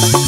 you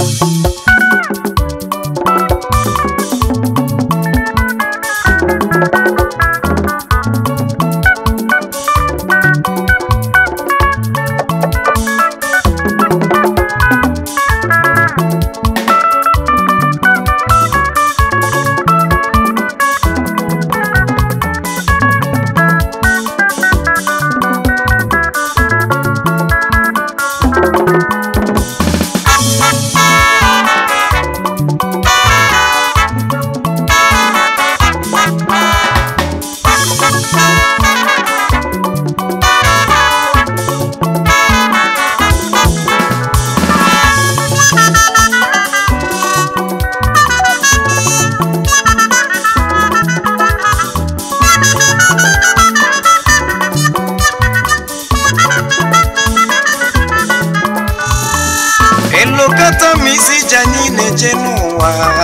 chani ne chenua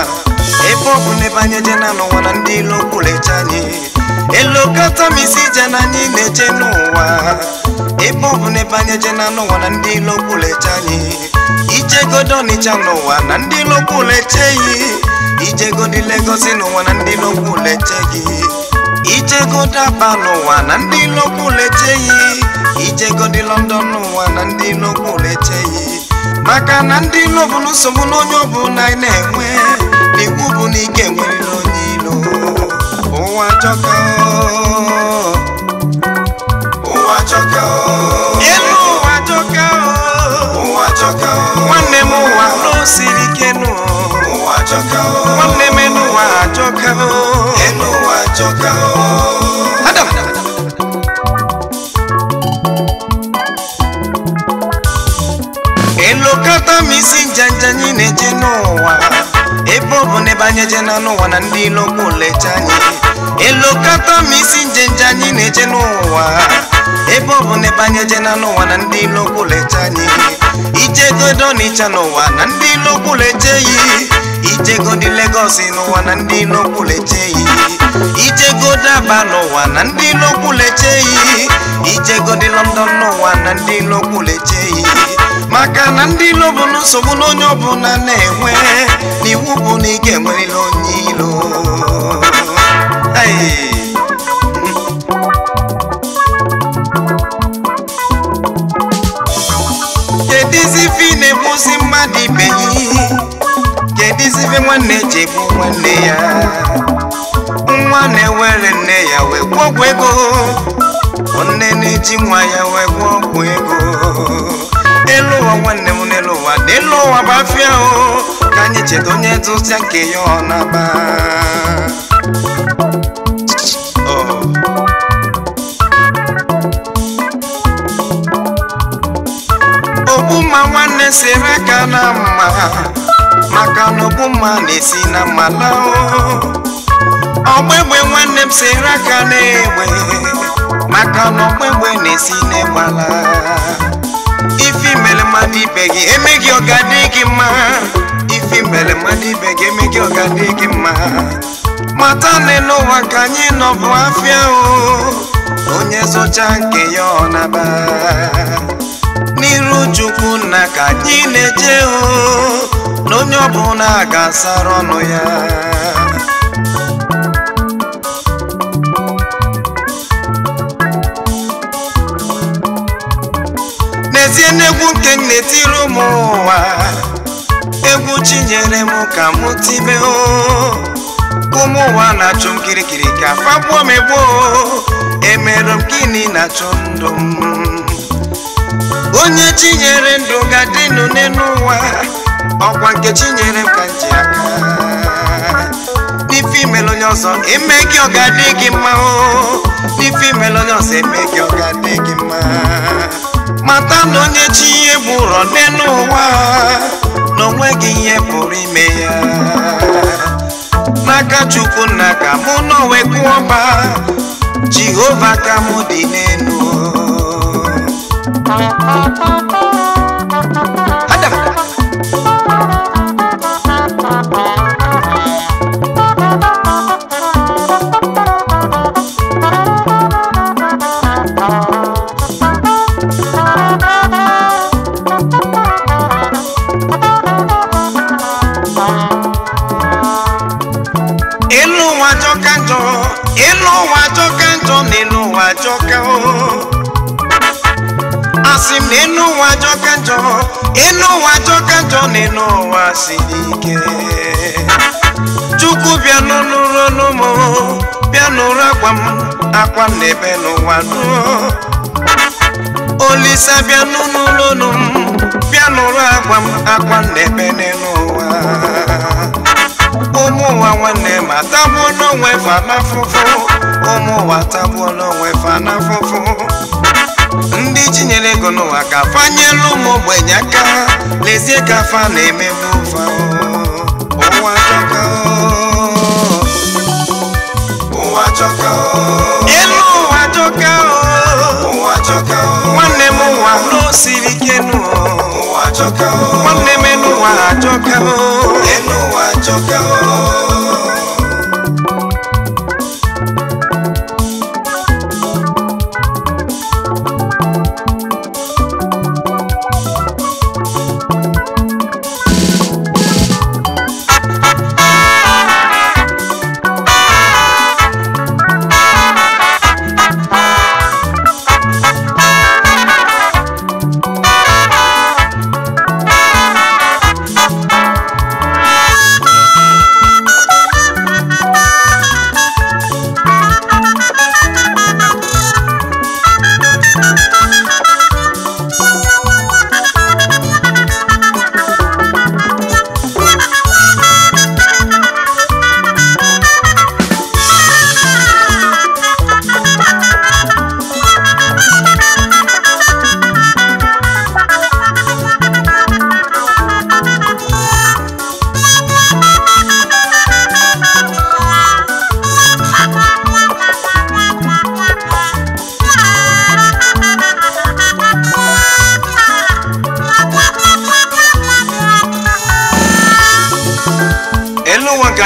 Epo kune panye jena no wana ndilo kule chani Elo kata misi jena ni ne chenua Epo kune panye jena no wana ndilo kule chani Ije godo ni chano wana ndilo kule chayi Ije godi lego sinu wana ndilo kule chayi Ije goda bano wana ndilo kule chayi Ije godi londonu wana ndilo kule chayi maka na ndị ilo bụ nsogbu n'onye ọbụla anyị na-enwe bụ na ike nwere onye ilo ụwa chọka ụwa ụwa ụwa nwanne m ụwa siri ike nụ ebe ọ bụ n'ebe anyị eje na n'ụwa na ndị ilo lecha anyị elokata ma isi njenje anyị na-eje n'ụwa ebe ọ bụ n'ebe anyị eje na n'ụwa na ndị ilokwu lecha anyị ijegodo n'ịcha n'ụwa na ndị ilokwu lecha eyi ijegodi Legọs n'ụwa na ndị ilokwu lecha eyi ijegodo Aba n'ụwa na ndị ilokwu lecha eyi ijegodi London n'ụwa na ndị ilokwu lecha eyi maka na ndị ilo bụ nsogbu na onye ọbụla na-enwe n'iwu bụ na ị ga-enwerịla onye iro. kedizi ife ị na mmadụ ibe ya kedizi nwanne ji egbu nwanne ya nwa na-ewere nne ya wee gwọọ ọgwụ ego nne na-eji nwa ya wee gwọọ ọgwụ ego elu ụwa nwanne m n'elu ụwa dị ụwa bụ afịa ahụ ka anyị cheta onye tụsịa nke ya ọ na-aba ogbumma nwanne siri ka na mma maka na ogbumma na-esi na mma o ọgbegbe nwanne m siri aka na-egbe maka na ọgbegbe na-esi na ala If you mele mati begi, e make your gadigi ma. If you mele mati begi, e make your gadigi ma. Matane no wakanyi no vwafia o. Onye so chanke yona ba. Niru chuku na kanyi neche o. No nyobu na gasaro no ya. n'egwu nke m na-etiri ụmụ ụwa egwu chinyere m ka m tibe ụmụ ụwa na-achụ m kirikiri ka fagbuo m egbuo emerụ m gịnị na-achụ ndụ m onye chinyere ndụ ga-adịnụ n'elu ụwa ọkwa nke chinyere m ka m ji aka n'ife imere onye ọzọ eme gị ọ ga-adị gị mma o n'ife imere onye ọzọ eme gị ọ ga-adị gị mma mata na onye chi ihe gbụrọ dị n'ụwa na onweghị ihe pụrụ ime ya n'aka chukwu na ka mụ n'onwe ọba jehova ka mụ dị n'elu elu ụwa jọka njọ elu ụwa jọka njọ na elu ụwa jọka asị m na elu ụwa jọka njọ elu ụwa jọka njọ na chukwu bịa n'ụlọ n'ụmụ bịa n'ụra akwa m akwa m n'ebe n'ụwa nụọ olisa bịa n'ụlọ n'ụmụ bịa n'ụlọ agwa m akwa m n'ebe n'ụwa ụmụ ụwa nwanne ma tagbuo n'onwe fa n'afụfụ ụmụ ụwa tagbuo n'onwe fa ndị jinyere ego n'ụwa ka fanyelu ụmụ ogbenye aka lezie ka fa na-emebu fa ụwa chọka ụwa chọka elu ụwa ụwa chọka m ụwa n'osiri ike ụwa nwanne m n'ụwa to go.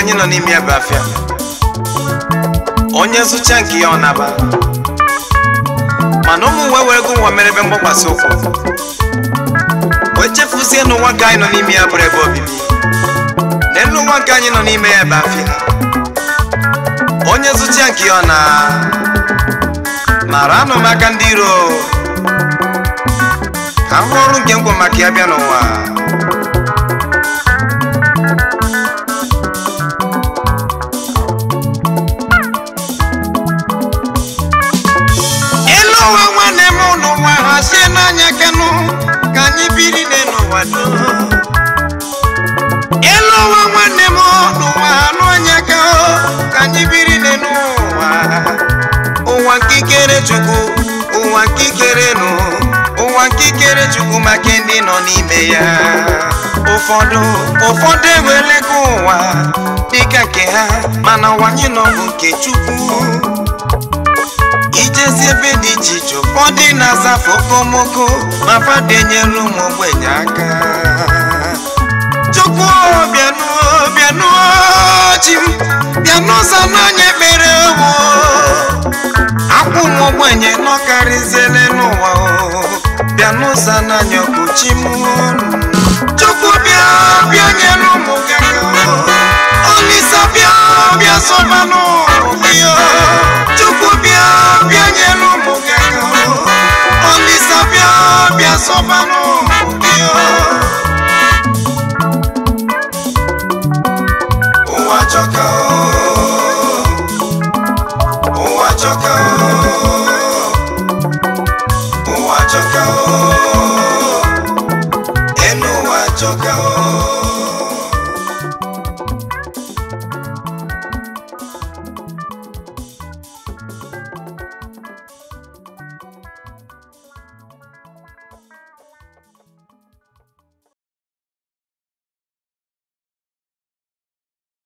anyị nọ n'ime ya afịa onye zụcha nke ya ọ naba mana ụmụ nwe were ego nwa mere ebe mgbakwasị ụkwụ wee chefuzie n'ụwa nke anyị nọ n'ime ya bụrụ ebe obibi n'elu ụwa nke anyị nọ n'ime ya ebe afịa onye zụcha nke ya ọ na mara anụ m aka ndị iro ka m ọrụ nke ngwọ maka ya bịa n'ụwa chukwu maka ndị nọ n'ime ya ụfọdụ ụfọdụ ewerego ụwa dịka nke ha mana wanye n'ọbụ nke chukwu ijezi ebe dị iche iche ụfọdụ na-aza okomoko ma fadenyere ụmụ ogbenye aka chukwu bịanuo bịanuo chi m bịanụza akwụ ụmụ ogbenye nọkarịzie ụzọ n'anya ọkpụchi m chukwu bịa bịa nyere ụmụ gị bịa bịa sọba n'ụmụ gị bịa bịa nyere bịa bịa